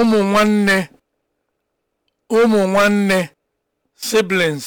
ụmụ nwanne ụmụ nwanne siblings